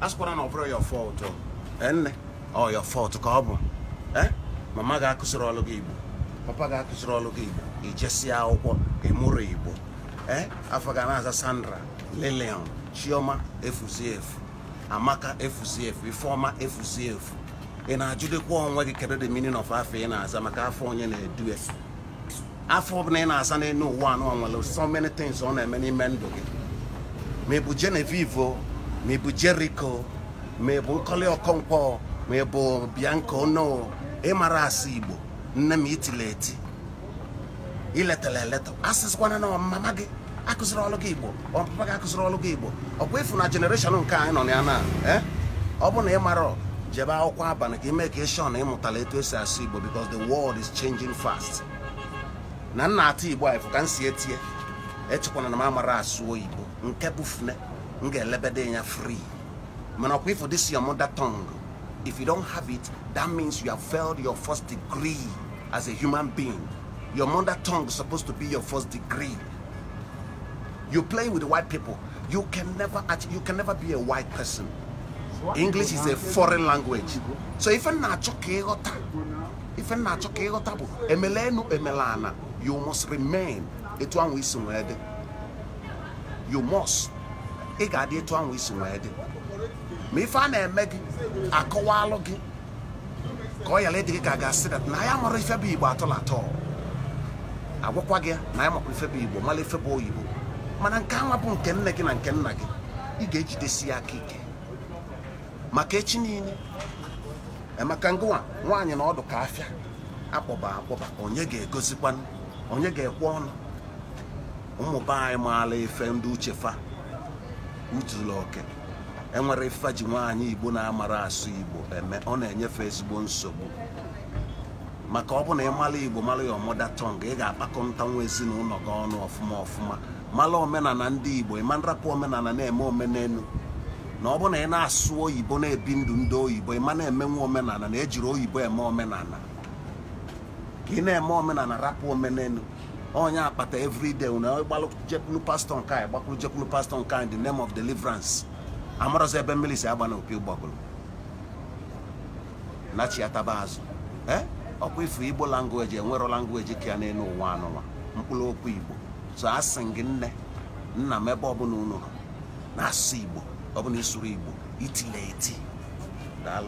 asịkwara na ọ bụrụ your fault nne ọ oh, your fault ka ọ bụ mama ga-akụziri ọlụ gị igbo papa ga-akụziri ọlụ gị igbo ijesia akwụkwọ ịmụrụ igbo afọ ga na-aza Sandra Lilian Chioma efuzi Amaka efuzi Ifeoma efuzi ị na-ajụdekwa onwe gị kedu the meaning of afọ ị na-aza maka afọ onye na-edu afọ ọbụla ị na-asa n'elu ụwa anụ nwere so many things ọ na-eme n'ime ndụ gị ma ị bụ Genevieve ma ị bụ Jericho ma ị bụ nkọli Okonkwo ma ị bụ Bianco no ịmara e asụ Igbo nne m itile eti iletara eleta asịsịkwana na mama gị akụziri ọlụ gị Igbo ọpapa gị akụziri ọlụ gị Igbo bụ ịfụ na jenereshọn nke anyị nọ na ya na e? ọ bụ na ị mara jebe akwụkwọ abalị ka ime ka ịshọ na ịmụtala etu esi asụ Igbo because the world is changing fast na nna atụ Igbo anyị fụ ka m si etie echekwana na m amara asụ Igbo nke bụ fune Ngelebede are free. Manakwe for this your mother tongue. If you don't have it, that means you have failed your first degree as a human being. Your mother tongue is supposed to be your first degree. You play with white people. You can never you can never be a white person. English is a foreign language. So if you're not if you're emelana, you must remain. It one we You must. ị ga-adị etu ahụ isi nwee dị ma ife a na-eme gị akọwaalụ gị ka ọ yara ịdị gị ka ga-asị dat na ya mụrụ ife bụ igbo atọla atọ agwakwa gị na ya makwa ife bụ igbo mara ife bụ oyibo mana nke anwa bụ nke nne gị na nke nna gị ị ga-ejidesi ya aka ike maka echi niile emeka ngụwa nwaanyị na ọdụ ka afịa akpọba akpọba onye ga-egozikwanụ onye ga-ekwe ọnụ ụmụ be anyị maala ife ndị uchefa utula oke enwere ifeji nwaanyị igbo na-amara asụ igbo eme ọ na-enyefe ezigbo nsogbu maka ọ bụ na ị mara igbo mara ya ọmụda tọng ị ga-akpakọnta nwa ezinụlọ gị ọnụ ọfụma ọfụma mara omenala ndị igbo ịma nrapụ omenala na-eme omenelu na ọ bụ na ị na-asụ oyibo na-ebi ndụ ndị oyibo ịma na-eme omenala na ejiri oyibo eme omenala ka ị na-eme omenala rapụ omenelu onye akpata everyday una gbalụ jekwulu pastọ nke anyị gbakwuru jekwulu pastọ nke anyị the name of deliverance amarọzi ebe mmiri si agba na opi ya taba azụ ee ọkwa ifu igbo language enwero language ka ya n'elu ụwa anụnwa mkpụrụ okwu igbo so a gị nne nna m ebe ọbụla unu nọ na-asụ igbo ọbụla isuru igbo itile eti daalụ